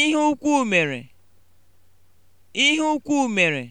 Ihe ukwu mere, ihe ukwu mere